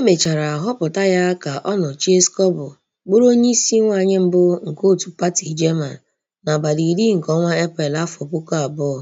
Emechara họpụta ya ka ọ nọchie Schuble bụrụ isi nwanyị mbụ nke otu pati German n'abalị iri nke ọnwa Eprel afọ puku abụọ.